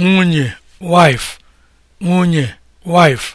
nwunye wife nwunye wife